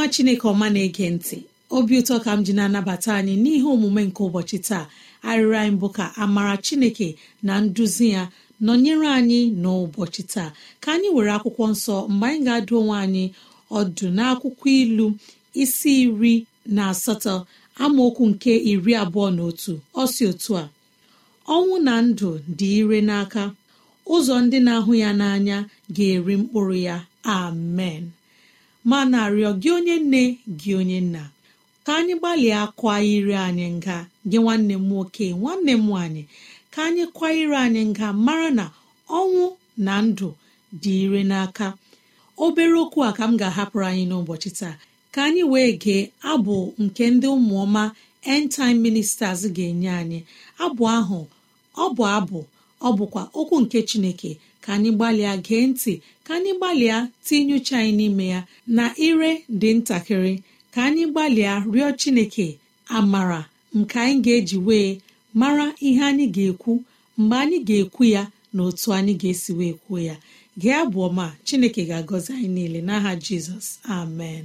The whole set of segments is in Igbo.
nwa chineke ọma na-ege ntị obi ụtọ ka m ji na-anabata anyị n'ihe omume nke ụbọchị taa arịrị anyị bụ ka amara chineke na nduzi ya nọnyere anyị n'ụbọchị taa ka anyị were akwụkwọ nsọ mgbe anyị ga-adụ onwe anyị ọdụ n'akwụkwọ ilu isi iri na asatọ amaokwu nke iri abụọ na otu ọsi otu a ọnwụ na ndụ dị ire n'aka ụzọ ndị na-ahụ ya n'anya ga-eri mkpụrụ ya amen ma na-arịọ gị onye nne gị onye nna ka anyị gbalịa kwa iri anyị nga gị nwanne m nwoke nwanne m nwaanyị ka anyị kwa ire anyị nga mara na ọnwụ na ndụ dị ire n'aka obere okwu a ka m ga-ahapụrụ anyị n'ụbọchị taa ka anyị wee gee abụ nke ndị ụmụọma end ministers ga-enye anyị abụ ahụ ọ bụ abụ ọ bụkwa okwu nke chineke ka anyị gbalịa gee ntị ka anyị gbalịa tinye uche anyị n'ime ya na ire dị ntakịrị ka anyị gbalịa rịọ Chineke amara nke anyị ga-eji wee mara ihe anyị ga-ekwu mgbe anyị ga-ekwu ya na otu anyị ga-esi wee kwuo ya gee abụọ ọma Chineke ga-agọzi anyị niile n'aha Jizọs amen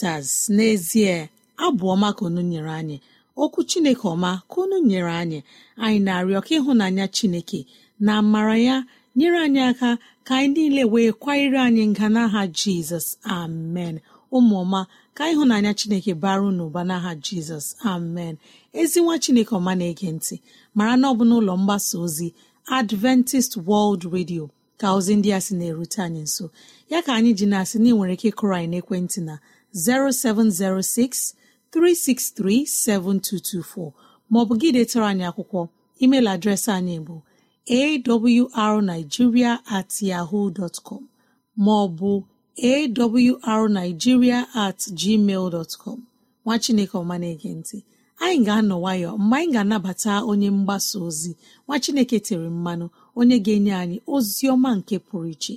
Daily n'ezie abụọma ka unu nyere anyị okwu Chineke ọma ka unu nyere anyị anyị na-arịọ ka ịhụnanya Chineke na amara ya nyere anyị aka ka anyị niile wee kwanyere anyị nga n'aha Jizọs amen ụmụọma ka ịhụnanya Chineke baru n'ụba n'aha Jizọs amen ezi nwa Chineke ọma na-ege ntị mara na ọ bụ n'ụlọ mgbasa ozi Adventist World Radio ka ozi ndị a sị na-erute anyị nso ya ka anyị ji na-asị na ị nwere ike ịkụrọ anyị n'ekwentị na 0706 363 7224 maọbụ gị detara anyị akwụkwọ email adreesị anyị bụ awrnigeria at yahoo dot maọbụ awrnigeria at gmail dot nwa chineke ọma na-ege ntị anyị ga-anọ nwayọ mgbe anyị ga-anabata onye mgbasa ozi nwa chineke tere mmanụ onye ga-enye anyị ozi ọma nke pụrụ iche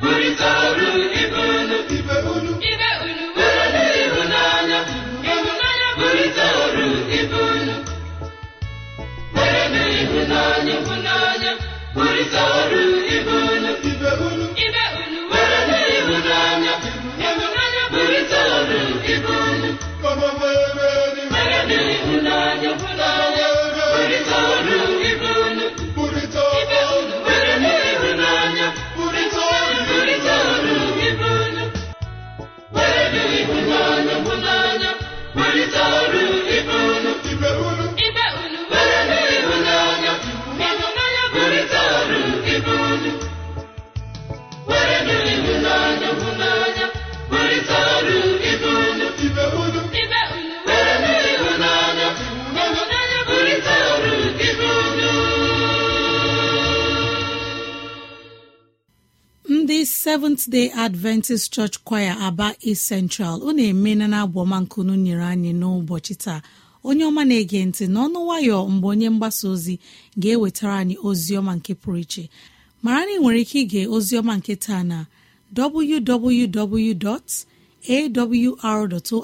wer a a seventh day adventist church choir aba east central ọ na-eme na abụọma nyere anyị n'ụbọchị taa onye ọma na-ege ntị n'ọnụ nwayọ mgbe onye mgbasa ozi ga-ewetara anyị ozi ọma nke pụrụ iche mara na ị nwere ike ige ozi nke taa na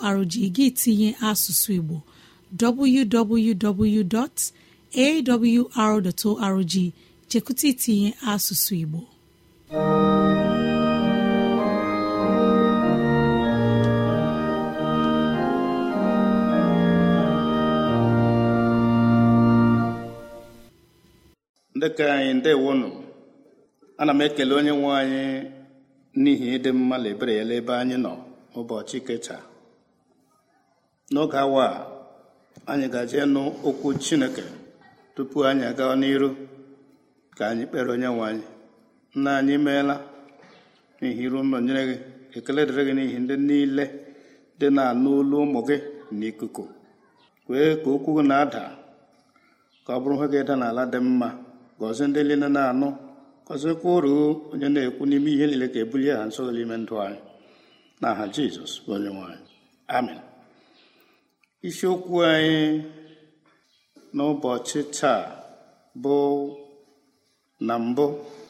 arrg gị tinye asụsụ igbo www.awr.org chekwụta itinye asụsụ igbo ndị anyị ndewo nụ ana m ekele onye nwe anyị n'ihi ịdị mma na ebere ya ebe anyị nọ ụbọchị kecha n'oge awa a anyị gaje nụ okwu chineke tupu anyị aga n'iru ka anyị kpere onye nwe anyị nna anyị meela n'ihi iru nyere gị ekele dịrị gị n'ihi ndị niile dị na-anụ olu ụmụ gị n'ikuku kwee ka okwu gị na-ada ka ọ bụrụ ha ga-eda n'ala dị mma gọzie ndị niile na-anụ uru onye na-ekwu n'ime ihe niile ka ebulie ha nso n'ime ndụ anyị na aha jizọs onye nwanyị amen isiokwu anyị n'ụbọchị taa bụ na mbụ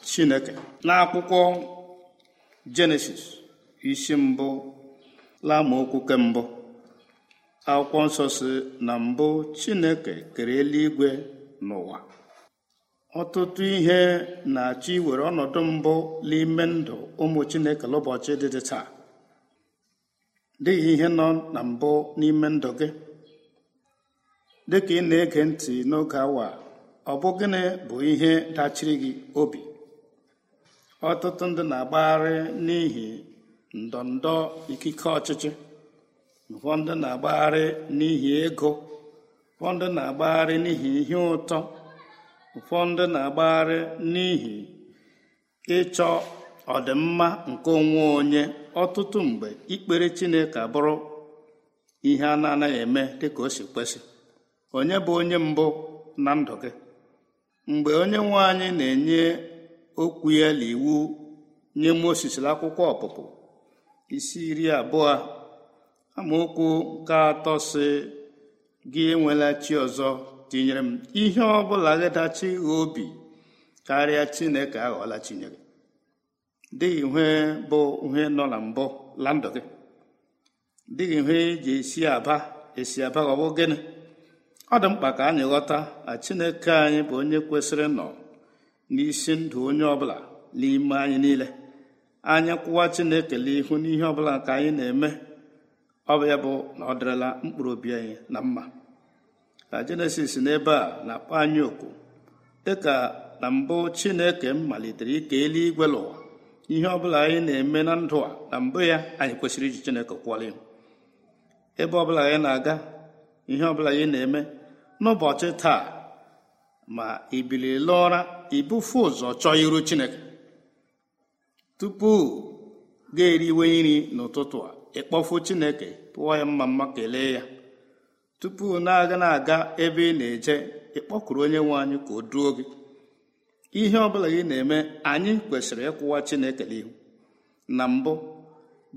chineke n'akwụkwọ jenesis isi mbụ lamaokwu ke mbụ akwụkwọ nsọ na mbụ chineke kere eluigwe n'ụwa ọtụtụ ihe na-achọ iwere ọnọdụ mbụ n'ime ndụ ụmụ chineke n'ụbọchị dị taa dịghị ihe nọ na mbụ n'ime ndụ gị dị ka ị na-ege ntị n'oge awa ọ bụ gịnị bụ ihe dachiri gị obi ọtụtụ ndị na-agbagharị n'ihi ndọndọ ikike ọchịchị ụfọdụ na-agbagharị n'ihi ego ụfọdụ na-agbagharị n'ihi ihe ụtọ ụfọdụ na-agbagharị n'ihi ịchọ ọdịmma nke onwe onye ọtụtụ mgbe ikpere chineke bụrụ ihe a na-anaghị eme dịka o si kwesị onye bụ onye mbụ na ndụ gị mgbe onye nwe anyị na-enye okwu ya na iwu nye Mosis akwụkwọ ọpụpụ isi iri abụọ amaokwu nke atọ si gị enwela chi ọzọ tinyere m ihe ọ bụla gadachi obi karịa chineke aghọọla chineke dịghị ihe bụ ihe nọ na mbụ la ndụ gị dịghị ihe eji esi aba esi aba ọ bụ gịnị ọ dị mkpa ka anyị ghọta na chineke anyị bụ onye kwesịrị nọ n'isi ndụ onye ọbụla n'ime anyị niile anyị kwụwa chineke n'ihu n'ihe ọbụla nke anyị na-eme ọ bụ ya bụ na ọ dịrịla mkpụrụ obi anyị na mma na jenesis n'ebe a na-akpọ anyị oku dịka na mbụ chineke m malitere ike eluigwe n'ụwa ihe ọbụla anyị na-eme na ndụ a na mbụ ya anyị kwesịrị iji chineke kwụọrọ ebe ọbụla anyị na-aga ihe ọbụla anyị na-eme n'ụbọchị taa ma ibilila ụra ibufe ụzọ chọọ iru chineke tupu ga-eriwe nri n'ụtụtụ a ịkpọfu chineke pụọ ya mma mma kelee ya tupu na-aga na-aga ebe ị na-eje ịkpọkụrụ onye nwe anyị ka o duo gị ihe ọbụla gị na-eme anyị kwesịrị ịkwụwa Chineke n'ihu na mbụ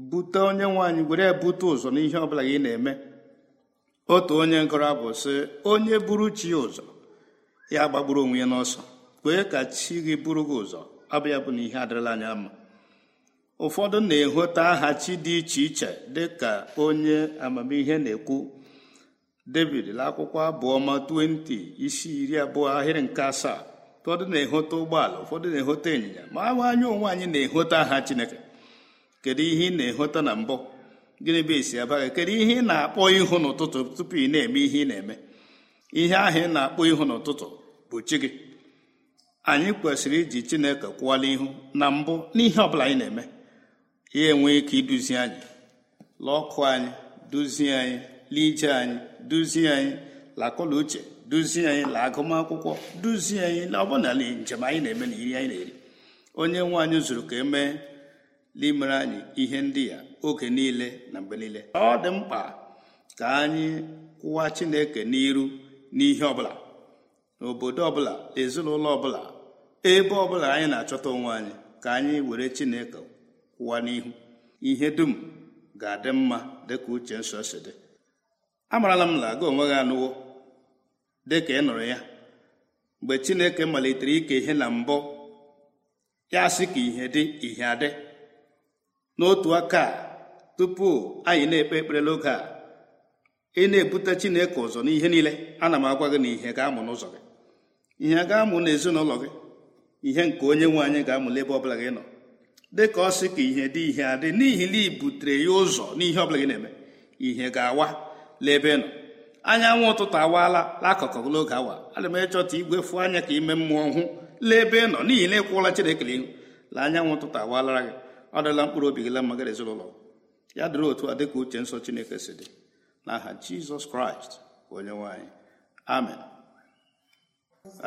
bute onye nwe anyị were bute ụzọ n'ihe ọ bụla gị na-eme otu onye ngọrọ bụ sị onye buru chi ya ụzọ ya gbagburu onwe ya n'ọsọ kwee ka chi gị buru gị ụzọ abịa bụ na ihe adịrịla anya mma ụfọdụ na-ehota aha chi dị iche iche dị ka onye amamihe na-ekwu david akwụkwọ abụọma 20 isi iri abụọ ahịrị nke asaa ụfọdụ na-ehote ụgbọala ụfọdụ na ehota ịnyịnya ma ahụ anya onwe anyị na ehota aha chineke kedu ihe ị na-ehote na mbụ gịnị bụ esi abaghị kedu ihe ị na-akpọ ihu n'ụtụtụ tupu ị na-eme ihe ị na-eme ihe ahụ ị na-akpọ ihu n'ụtụtụ bụ chi gị anyị kwesịrị iji chineke kwụwala ihu na mbụ n'ihe ọbụla anyị na-eme ya enwe ike iduzi anyị lọkụ anyị duzie anyị ije anyị duzie anyị lakọla uche duzie anyị la agụmakwụkwọ duzie anyị la ọbụna njem anyị na-eme na iri anyị na-eri onye nwe anyị zụrụ ka emee n'imere anyị ihe ndị ya oge niile na mgbe niile ọ dị mkpa ka anyị kwụwa Chineke n'iru n'ihe ọbụla n'obodo ọbụla ezinụlọ ọbụla ebe ọbụla anyị na-achọta onwe anyị ka anyị were Chineke kwụwa n'ihu ihe dum ga-adị mma dịka uche nsọ si dị amarala m na gị onwe gị anụwo dị ka ị nụrụ ya mgbe chineke malitere ike ihe na mbụ ya sị ka ihe dị ihe adị n'otu aka tupu anyị na-ekpe ekpere n'oge a ị na-ebute chineke ụzọ n'ihe niile ana m agwa gị na ihe ga-amụ n'ụzọ gị ihe ga-amụ n'ezinụlọ gị ihe nke onye nwe anyị ga-amụ n'ebe ọbụla gị nọ dị ka ọ sị ka ihe dị ihe adị n'ihi na ibutere butere ya ụzọ n'ihe ọbụla gị na-eme ihe ga-awa lebenụ anyanwụ ụtụtụ awaala n'akụkụ n'oge awa ana m echọta igwe fụ anya ka ime mmụọ hụ nọ n'ihi na ịkwụla Chinekere ihu la anyanwụ ụtụtụ awalara gị ọ dịla mkpụrụ obi gị la mma gị ezinụlọ ya dịrị otu a dịka uche nsọ Chineke si dị n'aha Jizọs Kraịst onye nwe anyị amen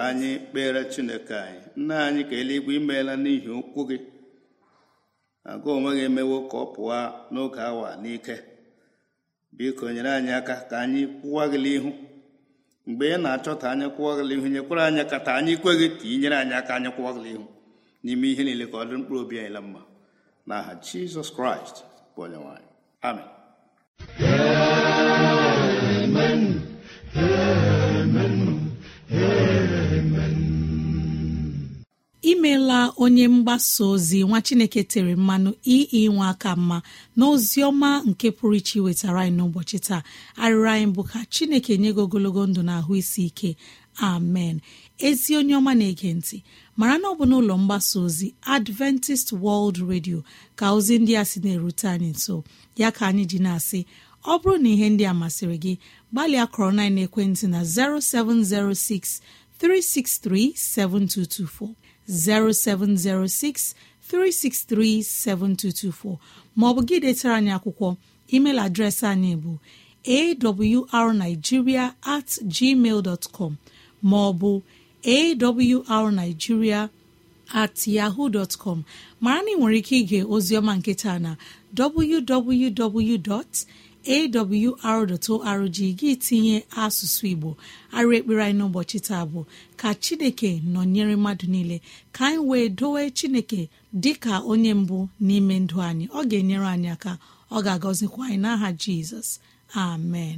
anyị kpere Chineke anyị nna anyị ka eluigwe imeela n'ihi okwu gị agụ onwe gị emewo ka ọ pụọ n'oge awa n'ike biko nyere anyị aka ka anyị kwụwa gịlị ihu mgbe ị na-achọta anyị kwụwa gịlị ihu nyekwara anyị aka ta anyị kweghị ka ị anyị aka anyị kwụwa gịlị ihu n'ime ihe niile ka ọ dị mkpụrụ obi anyị la mma n'aha jizọs kraịst bụ onye nwanyị amen amen imeela onye mgbasa ozi nwa chineke tere mmanụ ii nwa aka mma na ọma nke pụrụ iche wetara anyị n'ụbọchị taa arịrị anyị bụ ka chineke nye gị ogologo ndụ na ahụ isi ike amen ezi onye ọma na-ege ntị mara na ọ bụ n'ụlọ mgbasa ozi adventist world radio ka ozi ndị a sị na-erute anyị nso ya ka anyị ji na-asị ọ bụrụ na ihe ndị a masịrị gị gbalịa kọrọ na ekwentị na 0706 363 7224 0706 363 7224 maọbụ gị detara anyị akwụkwọ email adreesị anyị bụ awrnigeria at gmail dot com maọbụ awrnigeria at yahoo dot mara na ị nwere ike ige ozioma nketa na www. awr.org gị tinye asụsụ igbo arụ ekpere anyị n'ụbọchị taa bụ ka chineke nọnyere mmadụ niile ka anyị wee dowe chineke dịka onye mbụ n'ime ndụ anyị ọ ga-enyere anyị aka ọ ga-agọzikwa anyị n'aha jizọs amen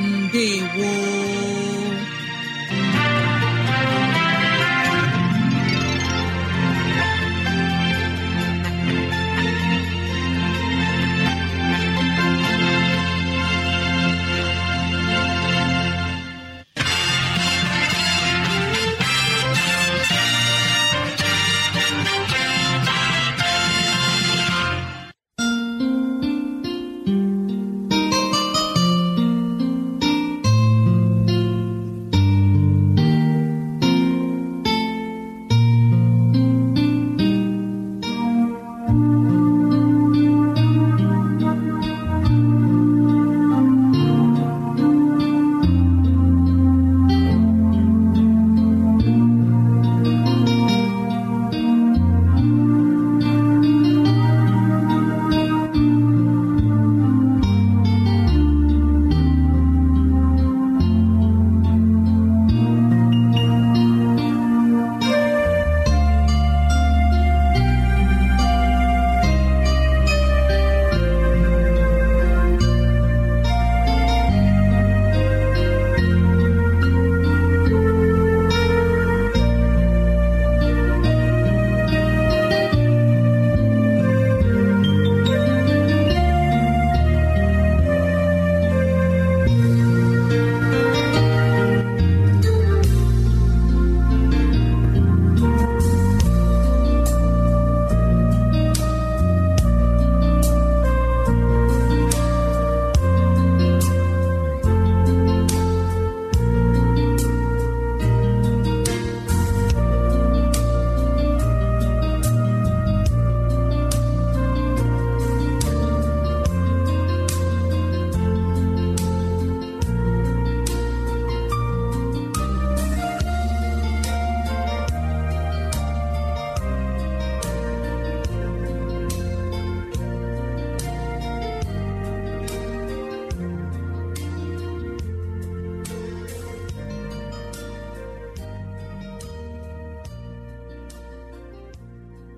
ndewo